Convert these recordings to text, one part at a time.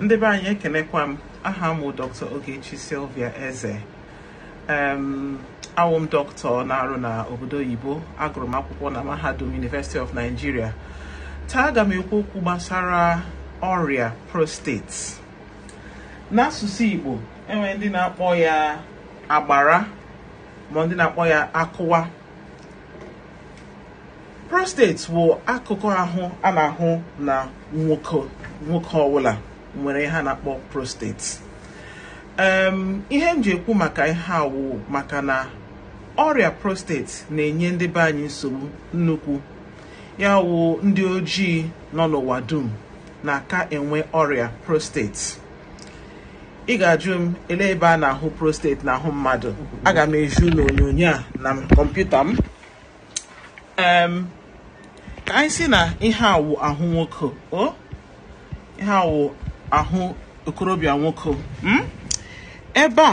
ndị be anyị ekenekwa m aha m dr ogechi silvia eze em awụ dọkịta na-arụ na obodo oyibo agụrụ m akwụkwọ na mahadum university of nigeria taa aga m ekwu okwu gbasara ọrịa prostate n'asụsụ igbo enwere ndị na-akpọ ya agbara ma ndị na-akpọ ya akụwa prostate bụ akụkụ ahụ a na-ahụ na nwoke nwoke ọbụla nwere ihe a na-akpọ prostate ihe m ji ekwu maka ihe awụ maka na ọrịa prostate na-enye ndị be anyị nsogbu nnukwu ya wụ ndị ojii nọ n'ụwa dum na-aka enwe ọrịa prostate ị ga-ajụ m ele ebe a na-ahụ prostate ahụ mmadụ aga m eju n'onyonyo a na kọmputa m ka anyị si na ihe awụ ahụ nwoke o ihe awụ ahụ okorobịa nwoke hmm? ebe a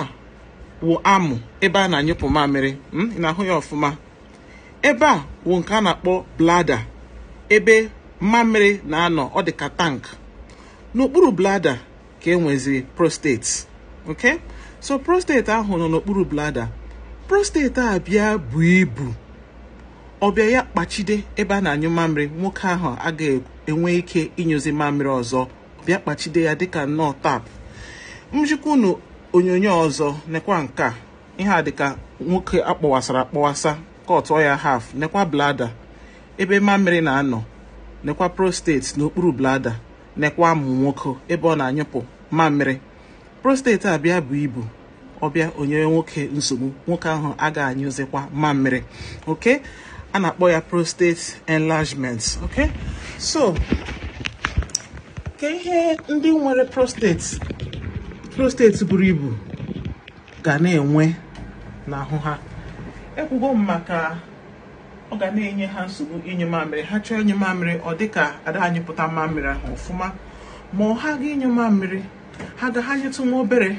wụ amụ ebe a na-anyụpụ mamịrị hmm? ị ahụ ya ọfụma ebe a wụ nke a na-akpọ blada ebe mamịrị na-anọ ọ dị ka tank n'okpuru blada ka enweziri prostate ok so prostate ahụ nọ n'okpuru blada prostate a bịa bụ ibu ọbịa ya kpachide ebe a na-anyụ mamịrị nwoke ahụ agaghị enwe ike ịnyụzi mamịrị ọzọ bịa kpachide ya dịka nnọọ tap m jikwa onyonyo ọzọ nekwa nke ihe a dịka nwoke akpọwasara akpọwasa kọtụọ ya haf nekwa blada ebe mamịrị na-anọ nekwa prostate n'okpuru blada nekwa amụ nwoke ebe ọ na-anyụpụ mamịrị prostate abịa bụ ibu ọbịa onye nwoke nsogbu nwoke ahụ agaghị anyụzikwa mamịrị ok a na-akpọ ya prostate enlargement ok so ka ihe ndị nwere prostate prostate buru ibu ga na-enwe n'ahụ ha ekwugo m maka ọ ga na-enye ha nsogbu inye mamịrị ha chọọ inye mamịrị ọ dịka ada anyị pụta mamịrị ahụ ọfụma ma ọ ha ga inye mamịrị ha ga ha nyetụ nwa obere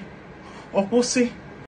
ọ kwụsị